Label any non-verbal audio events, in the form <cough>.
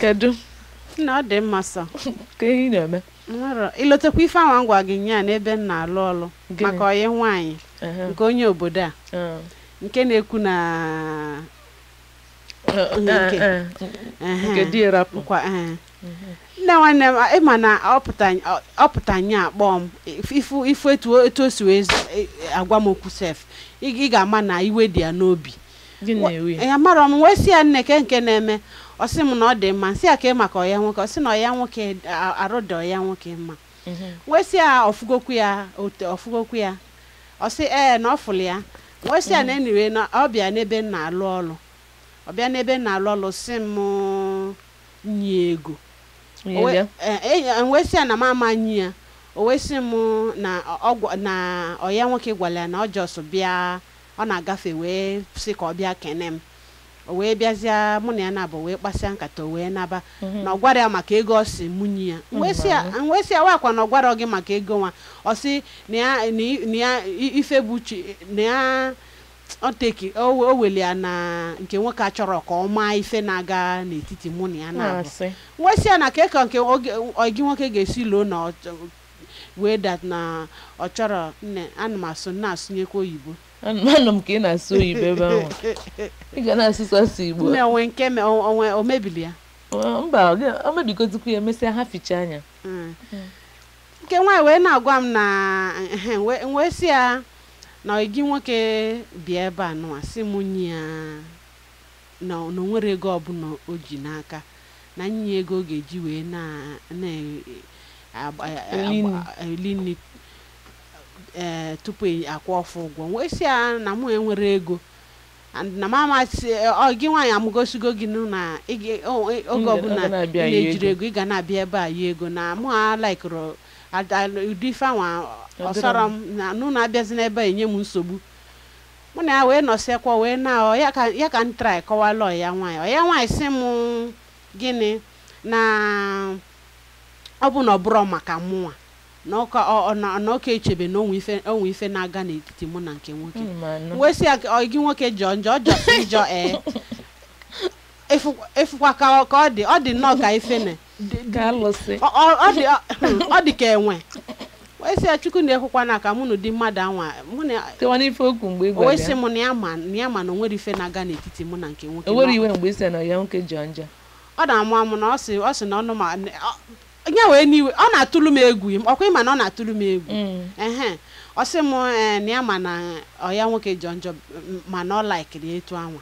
kedu na ọ dị mma sọ ka ihe na-eme ilotekwa ife anwa ngwa gị nye n'ebe m na-alụ ọlụ maka onye nwaanyị nke onye obodo a ah. nke na-ekwu na eh, eh, eh, nne nwanne m ịma na ọ pụta nye akpọ m ifu etu o si wee e, agwa m okwu sef ị ga-ama na iwe dị ya n'obi ya mara m wee si ya nne ke nke na-eme ọ sị m na ọ dị mma nsị a ka ị maka ọya nwoke ọ sị na ọya nwoke arụ dị ọya nwoke mma mhm. wee sị ya ọfụgokwu ya ọfụgokwu ya ọ sị ee na ọ fụlụ ya wee ya na mhm. enyiwe na ọ bịa n'ebe m na alụ ọlụ ọ bịa n'ebe m na alụ ọlụ sị m nye ego e, e, e, wee sị ya na m ama nyi ya o wee sị m na ọya nwoke gwara ya na ọ jọsụ bịa ọ na-agafe wee sị ka ọ bịa kene m o wee bịazịa mụ na ya na-abụ wee kpasịa nkata o wee naba mhm. na ọ gwara ya maka ego ọ si munye ya wee sị ya akwa na ọ gwara gị maka ego nwa ọ sị na ya ife bụ uche na ya oteki o weli ya na nke nwoke achọrọ ka ọ maa ife na-aga n'etiti mụ na ya na-abụ ah, wee sị ya na ka eka nke gị nwoke ga-esi loo na wee dat na ọ chọrọ nne ana m asụ na-asụnyekwa oyibo anụ m ka ị na-asụ oyibo ebe ahụ <laughs> ị ga na-asụsasụ igbo onwe nke onwe omebili ya mba o mebigotukwu ya emesịa ha ficha anya hmm. Hmm. nke nwaanyị wee na-agwa m na wee si ya na gị nwoke bịa ebe a nụwa si m nye ya na nwere ego ọbụla o ji n'aka na nye ego ọ ga-eji wee na-eli nri ee eh, tupu akwụ ọfụ ụgwọ wee si ya na mụ enwere ego na mama gị nwaanyị amụgosigo gị na oge ọbụla na-ejiri ego ị ga na-abịa ebe a yi ego na mụ alaikụrụ ụdị ifeanwa ọsọrọ m na nụ na-abịazi n'ebe a enye m nsogbu mụ na ya wee nọsịakwa wee na ya ka m trai kọwala ọya nwaanyị ọya nwaanyị sị m gịnị na ọ bụ na ọ maka mụnwa na ọka echebe na onwe ife na-aga n'etiti mụ na nke nwoke hmm, wee sị ya gị nwoke jọ njọ ọjọsị njọ <laughs> ee efukwa ka ọ dị ọ dị nnọọ ka ife na ọ dị hmm, ọ dị ka enwe wee sị ya chukwu na-ekwukwa na ka mụ na ụdị mmadụ anwa wee sị m na ya ma na onwere ife na-aga n'etiti mụ na nke nwoke O nwere ọ na-amụ amụ na ọ sị na ọnụ ma onye wee n'iwe ọ na-atụlụ m egwu ọkwa ịma na ọ na-atụlụ m egwu mm. ọ sị m eh, na ya ma na ọ ya nwoke jọ njọ ma na ọ laikiri etu anwa